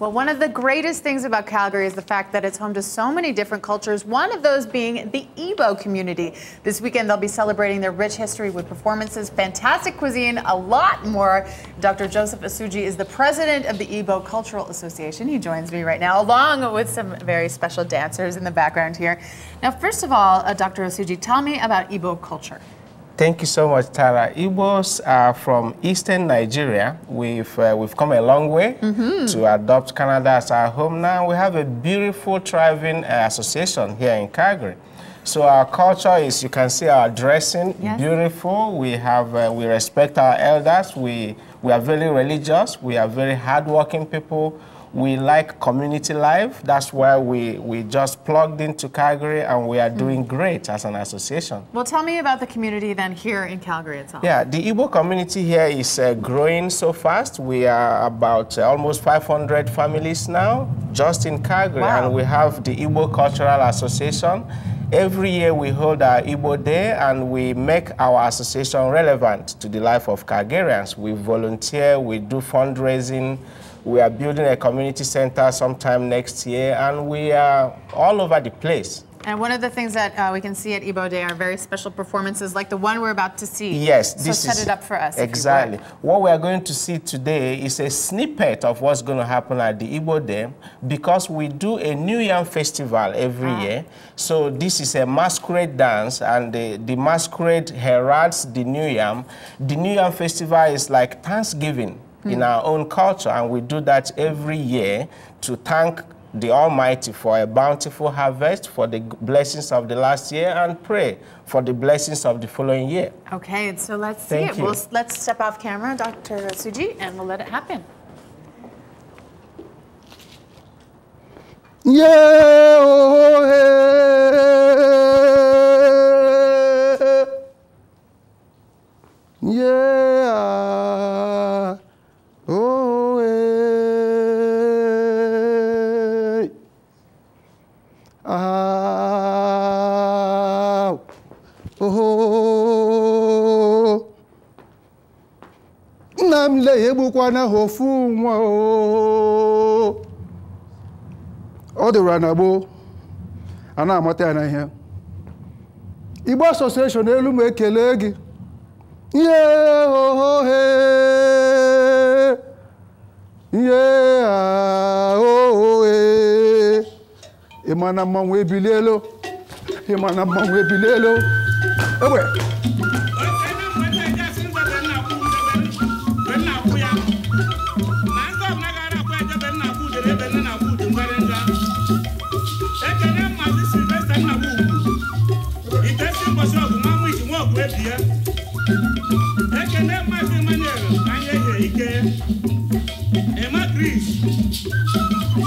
Well, one of the greatest things about Calgary is the fact that it's home to so many different cultures, one of those being the Igbo community. This weekend, they'll be celebrating their rich history with performances, fantastic cuisine, a lot more. Dr. Joseph Asuji is the president of the Igbo Cultural Association. He joins me right now, along with some very special dancers in the background here. Now, first of all, uh, Dr. Asuji, tell me about Igbo culture. Thank you so much, Tara. Igbos are from eastern Nigeria. We've, uh, we've come a long way mm -hmm. to adopt Canada as our home now. We have a beautiful, thriving uh, association here in Calgary. So our culture is, you can see our dressing, yes. beautiful. We have, uh, we respect our elders. We we are very religious. We are very hardworking people. We like community life. That's why we, we just plugged into Calgary and we are doing mm. great as an association. Well, tell me about the community then here in Calgary itself. Yeah, the Igbo community here is uh, growing so fast. We are about uh, almost 500 families now just in Calgary. Wow. And we have the Igbo Cultural Association. Every year we hold our Igbo Day and we make our association relevant to the life of Kagerians. We volunteer, we do fundraising, we are building a community center sometime next year, and we are all over the place. And one of the things that uh, we can see at Ibo Day are very special performances, like the one we're about to see. Yes, so this set is it up for us. Exactly. What we are going to see today is a snippet of what's going to happen at the Ibo Day, because we do a New Yam festival every ah. year. So this is a masquerade dance, and the, the masquerade heralds the New Yam. The New Yam festival is like Thanksgiving mm. in hmm. our own culture. And we do that every year to thank the Almighty for a bountiful harvest, for the blessings of the last year, and pray for the blessings of the following year. Okay, so let's Thank see it. We'll, let's step off camera, Dr. Suji, and we'll let it happen. Yeah, oh, hey. nna m le ya egbukwana ofu nwa ọ dịrụra na gboo a na-amata ya na ihe Igbo asosieshon elu ma ekele gị ihe ohe ihe aohe ịma na mmanwụ ebilielo ịma na mmanwụ ebilielo egbe kpọ shọpụ nwa mwichi nwa ọkụ ebi ya ekene maazị Emmanuel anya ehe ike ema Chris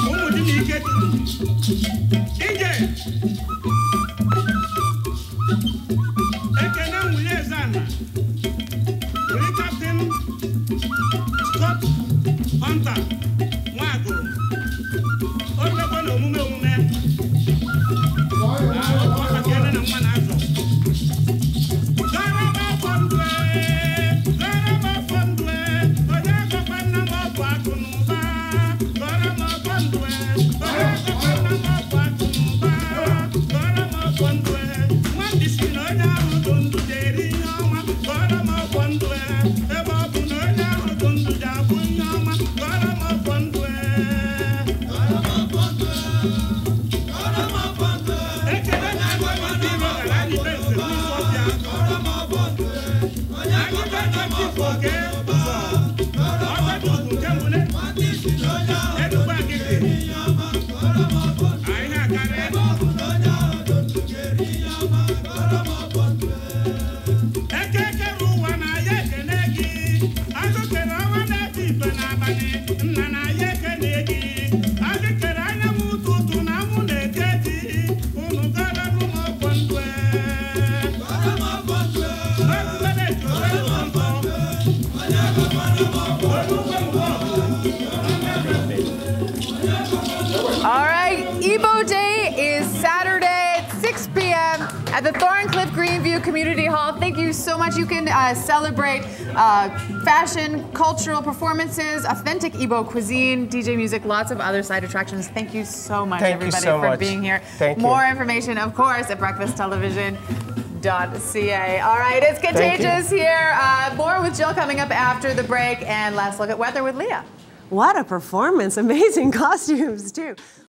ụmụ di na ike turu ije ekene Hunter Thank you. All right, Ebo Day at the Thorncliffe Greenview Community Hall. Thank you so much. You can uh, celebrate uh, fashion, cultural performances, authentic Igbo cuisine, DJ music, lots of other side attractions. Thank you so much, Thank everybody, so for much. being here. Thank More you. information, of course, at breakfasttelevision.ca. All right, it's Contagious here. Uh, more with Jill coming up after the break, and last look at weather with Leah. What a performance. Amazing costumes, too.